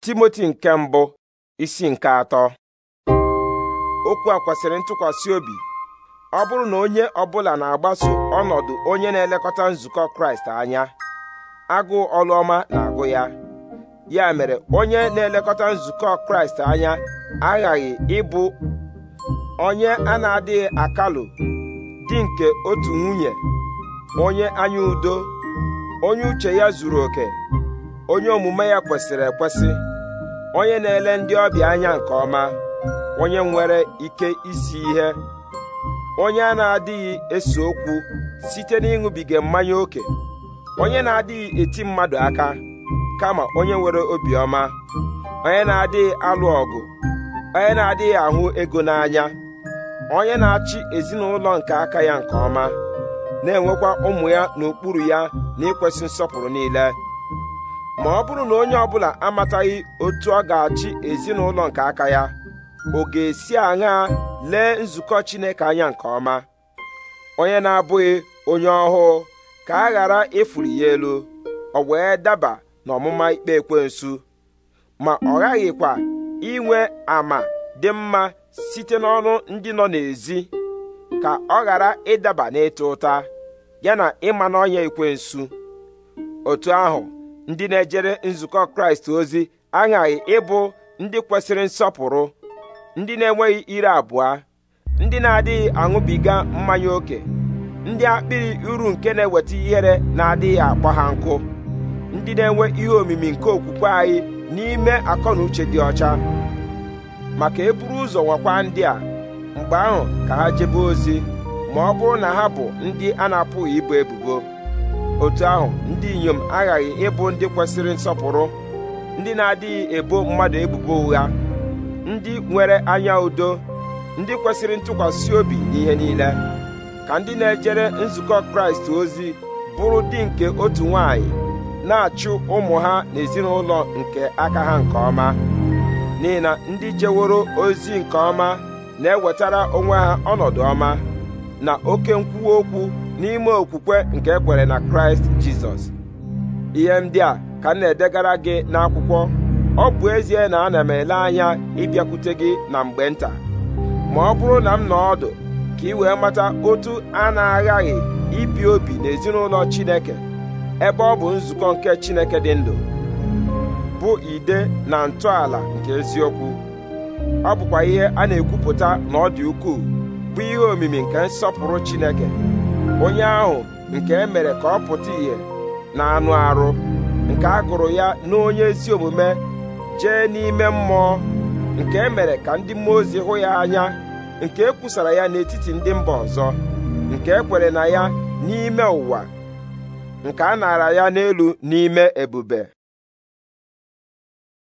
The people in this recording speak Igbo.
timoti nke mbụ isi nke atọ okwu a kwesịrị ntụkwasị obi ọ bụrụ na onye ọbụla na-agbaso ọnọdụ onye na-elekọta nzukọ kraịst anya agụụ ọlụọma na-agụ ya ya mere onye na-elekọta nzukọ kraịst anya aghaghị ịbụ onye a na-adịghị akalụ di nke otu nwunye onye anya udo onye uche ya zuru oke onye omume ya kwesịrị ekwesị onye na-ele ndị ọbịa anya nke ọma onye nwere ike isi ihe onye a na-adịghị ese okwu site n'ịṅụbiga mmanya ókè onye na-adịghị eti mmadụ aka kama onye nwere obiọma onye na-adịghị alụ ọgụ onye na-adịghị ahụ ego n'anya onye na-achị ezinụlọ nke aka ya nke ọma na-enwekwa ụmụ ya n'okpuru ya na nsọpụrụ niile ma ọ bụrụ na onye ọbụla amataghị otu ọ ga-achị ezinụlọ nke aka ya ọ ga-esi aṅaa lee nzukọ Chineke anya nke ọma onye na-abụghị onye ọhụụ ka a ghara ịfụrụ ya elu ọ wee daba n'ọmụma ikpe ekwensu ma ọ ghaghịkwa inwe ama dị mma site n'ọnụ ndị nọ n'ezi ka ọ ghara ịdaba n'ịta ụta ya na ịma n'ọnya ekwensu otu ahụ ndị na-ejere nzukọ kraịst ozi aghaghị ịbụ ndị kwesịrị nsọpụrụ ndị na-enweghị ire abụọ ndị na-adịghị aṅụbiga mmanya ókè ndị akpịrị uru nke na-eweta ihere na-adịghị akpọ ha nkụ ndị na-enwe ihe omimi nke okwukwe anyị n'ime akọ na uche dị ọcha maka eburu ụzọ nwakwa ndị a mgbe ahụ ka ha jebe ozi ma ọ bụrụ na ha bụ ndị a na-apụghị ibu ebubo otu ahụ ndị inyom aghaghị ịbụ ndị kwesịrị nsọpụrụ ndị na-adịghị ebo mmadụ ebubo ụgha ndị nwere anya udo ndị kwesịrị ntụkwasị obi n'ihe niile ka ndị na-ejere nzukọ kraịst ozi bụrụ di nke otu nwanyị na-achụ ụmụ ha n'ezinụlọ nke aka ha nke ọma n'ihi na ndị jeworo ozi nke ọma na-ewetara onwe ha ọnọdụ ọma na oke nkwuwa okwu n'ime okwukwe nke ekwere na kraịst jizọs ihe ndị a ka m na-edegara gị n'akwụkwọ ọ bụ ezie na ana m ele anya ịbịakwute gị na mgbe nta ma ọ bụrụ na m nọ ọdụ ka ị wee mata otu a na-aghaghị ibi obi n'ezinụlọ chineke ebe ọ bụ nzukọ nke chineke dị ndụ bụ ide na ntọala nke eziokwu ọ bụkwa ihe a na-ekwupụta na ọ dị ukwuu bụ ihe omimi nke nsọpụrụ chineke onye ahụ nke e mere ka ọ pụta ìhè na anụ arụ nke a gụrụ ya n'onye ezi omume jee n'ime mmụọ nke e mere ka ndị mmụọ ozi hụ ya anya nke e kwusara ya n'etiti ndị mba ọzọ nke e kwere na ya n'ime ụwa nke a nara ya n'elu n'ime ebube